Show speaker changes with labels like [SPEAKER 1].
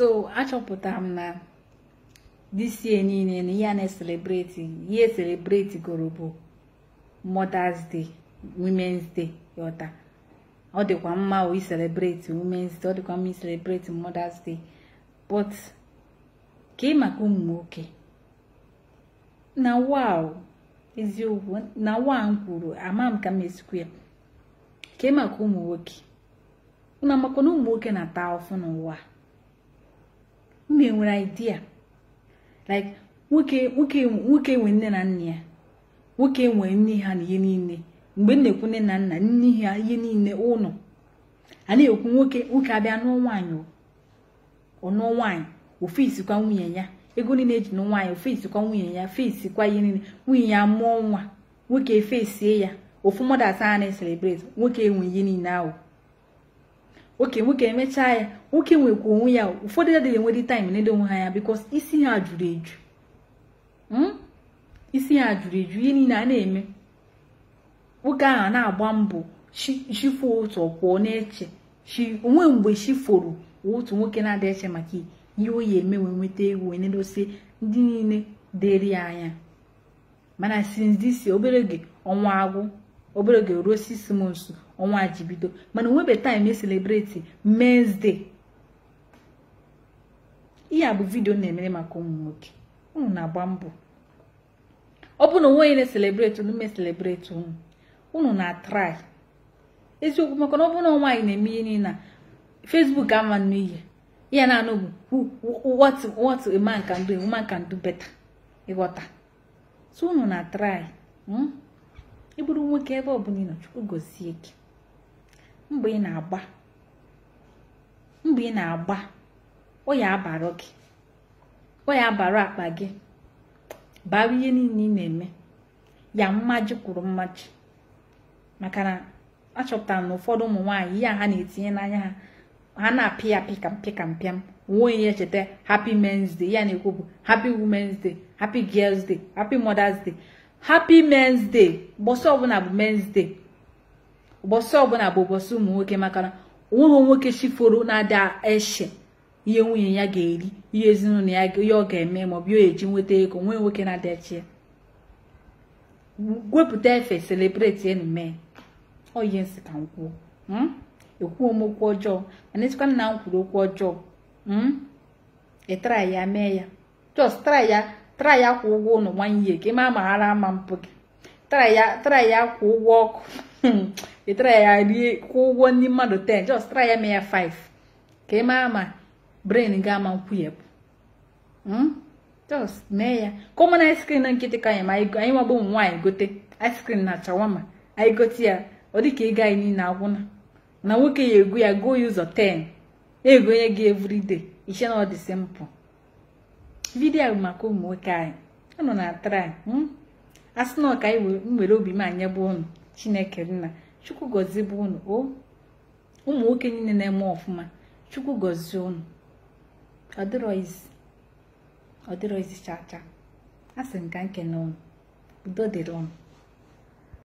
[SPEAKER 1] so achọpụtara m na disie niile na ihe a na-eselebreti ihe eselebreti goro bụ Mother's Day Women's Day ọta. ọ dịkwa mma o iselebreti Women's Day ọ dịkwa mma iselebreti Mother's Day but ka ị maka ụmụ nwoke na wow eziokwu na waa m kwuru ama m ka m esikwu ya ka ị maka ụmụ nwoke unu amakwa na ụmụ nwoke na-ata afụ n'ụwa na enwere idea like nwoke nwoke nwoke nwe nne na nna ya nwoke nwere nne ha na ihe niile mgbe m na-ekwu nne na nna nne ha ihe niile ụlọ a na-ekwu nwoke nwoke abịa nụọ nwaanyị ọnụọ nwaanyị ofe isikwa nwunye ya ego niile eji nụ nwaanyị ofe nwunye ya fesi kwa ihe niile nwunye ya mụọ nwa nwoke fesie ya ofu mmadụ a na-eselebreti nwoke enwe ihe niile ahụ oke nwoke emechaa ya nwoke nwekwa onwe ya ụfọdụ adịghị enwere taịm na-ede onwe ha ya bikos isi ha jụrụ eju isi ha jụrụ eju ihe niile a na-eme nwoke ahụ na-agba mbọ shifu otu ọkwụọ na-eche chi onwe mgbe chi foro otu nwoke na adị eche maka ihe oyi eme wee nweta egwu na-edosi ndị niile dịrị ya anya mana since this obere oge ọnwa agwụ obere oge ruo six months ọnwa ji bido mana onwebe time e celebrate men's day ihe a bụ vidio na-emere maka ụmụ nwoke ụmụ na-agba mbọ ọ bụ na onwe na-eselebreti unu me selebreti unu ụnụ na-atrai eziokwu maka na ọ bụrụ na nwaanyị na-eme ihe na Facebook ama nnu ihe ya na-anụ bụ what what a man can do a woman ịghọta so unu na-atrai hmm? ị bụrụ nwoke ebe ọbụla ị nọ chukwu gozie gị mgbe ị na-agba mgbe ị na-agba ya abara gị akpa gị bara ihe niile ị na-eme ya mmaji kwuru mmaji maka na achọpụtara na ụfọdụ ụmụ nwaanyị ihe a ha na-etinye n'anya ha ha na-apị ya pị kampị kampịam nwa ya cheta happy men's day ya na-ekwu bụ happy women's day happy girls day happy mother's day happy men's day ụbọchị ọbụla bụ men's day ụbọchị ọbụla bụ ụbọchị ụmụ nwoke maka na onweghị nwoke chiforo na-ada eche ihe nwunye ya ga-eri ihe ezinụlọ ya ihe ọ ga-eme bụ ihe eji nweta ego nwee nwoke na-ada eche wepụta efe celebrate enu mee ọ ihe nsị ekwuo hmm? e m okwu ọjọọ mana echekwa nna m kwuru okwu ọjọọ ịtara hmm? e ya mee ya jọs try ya tara ya kwụ ụgwọ ụlọ nwanyị gị ma maghara ama mpụ gị tara ya kwụ ụgwọ ọkụ tara ya rie kwụ ụgwọ ndị mmadụ 10 just tara ya mee ya 5 ka ị maa ma brain gị ama nkwụnyepụ just mee ya ka ụmụna ice cream na nkịtị ka anyị ma anyị nwagbo ụmụ nwaanyị gote ice cream na chawama anyị gote ya ọ dị ka ego anyị niile agwụna na nwoke ya egwu ya go ya ụzọ 10 onye gị everyday iche na ọ dị simpụl vidiyo maka ụmụ nwoke anyị unu na-atara hmm? a sị na ọka anyị obi m anya bụ unu chineke nna chukwu gọzie bụ ụmụ nwoke niile na-eme ọfụma chukwu gọzie ụnụ ọdịrọizi chacha a sị nke ka nkene unu udo dịrị